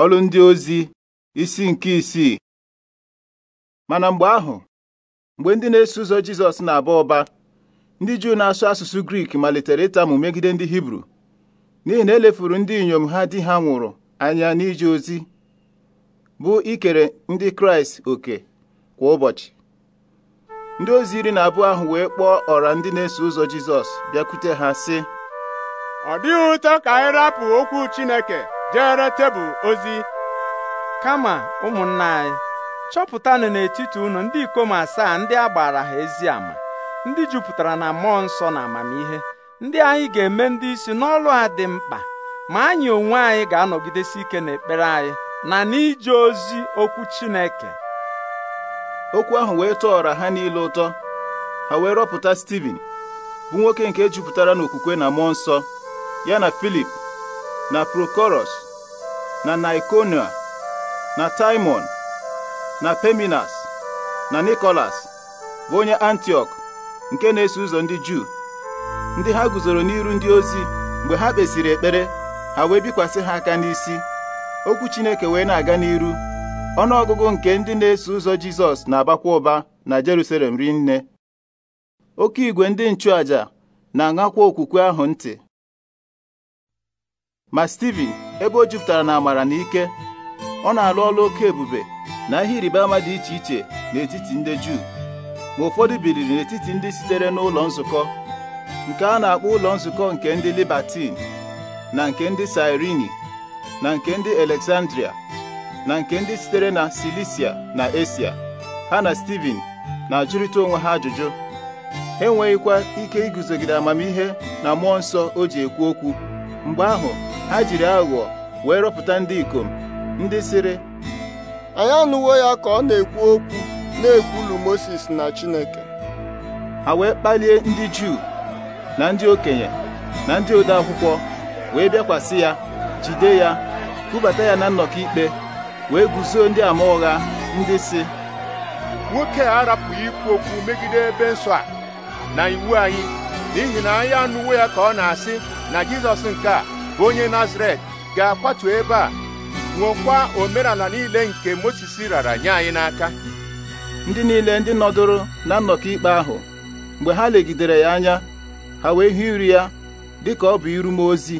Ọrụ ndị ozi isi nke isii mana mgbe ahụ mgbe ndị na-eso ụzọ Jizọs na-aba ụba ndị Juu na-asụ asụsụ Grik malitere ịtamụ megide ndị Hibru n'ihi na elefuru ndị inyom ha di ha nwụrụ anya n'ije ozi bụ ikere ndị Kraịst oke kwa ụbọchị ndị ozi iri na abụọ ahụ wee kpọọ ọra ndị na-eso ụzọ Jizọs bịakwute ha sị ọ dịghị ụtọ ka anyị rapụ okwu Chineke jere tebụl ozi kama ụmụnna anyị chọpụtanụ n'etiti unu ndị ikom asaa ndị a gbara ha ezi ama ndị jupụtara na mmụọ nsọ na amamihe ndị anyị ga-eme ndị isi n'ọlụ a dị mkpa ma anyị onwe anyị ga-anọgidesi ike n'ekpere anyị na n'ije ozi okwu Chineke okwu ahụ wee tọọrọ ha niile ụtọ ha wee rọpụta Steven bụ nwoke nke jupụtara n'okwukwe na mmụọ nsọ ya na Filip na Prokoros na Nikonia na Taimon na Peminas na Nikolas bụ onye antioch nke na-eso ụzọ ndị Juu ndị ha guzoro n'iru ndị ozi mgbe ha kpesiri ekpere ha wee bikwasị ha aka n'isi okwu Chineke wee na-aga n'iru ọnụọgụgụ nke ndị na-eso ụzọ Jizọs na-abakwa ụba na Jerusalem rinne oke igwe ndị nchụaja na-aṅakwa okwukwe ahụ ntị ma ebe o jupụtara na amara na ike ọ na-alụ ọlụ oke ebube na ihe ịrịba ama dị iche iche n'etiti ndị Juu ma ụfọdụ biliri n'etiti ndị sitere n'ụlọ nzukọ nke a na-akpọ ụlọ nzukọ nke ndị Libatin na nke ndị Sirini na nke ndị Alexandria na nke ndị sitere na Silisia na Esia ha na Steven na-ajụrịta onwe ha ajụjụ enweghịkwa ike iguzogide amamihe na mmụọ nsọ o ji ekwu okwu mgbe ahụ ha jiri aghụghọ wee rọpụta ndị ikom ndị sịrị anyị anụwo ya ka ọ na-ekwu okwu na-ekwulu Moses na Chineke ha wee kpalie ndị Juu na ndị okenye na ndị ode akwụkwọ wee bịakwasị ya jide ya kwubata ya na nnọkọ ikpe wee guzoo ndị ama ụgha ndị si nwoke a arapụghị ikwu okwu megide ebe nsọ a na iwu anyị n'ihi na anyị anụwo ya ka ọ na-asị na Jizọs nke a onye Nazaret ga-akwatu ebe a nwekwa omenala niile nke Mozis rara nye anyị n'aka ndị niile ndị nọdụrụ na nnọkọ ikpe ahụ mgbe ha legidere ya anya ha wee hụ iri ya ka ọ bụ irume ozi